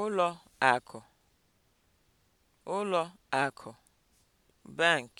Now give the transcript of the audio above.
ụlọ akụ ụlọ akụ (bank)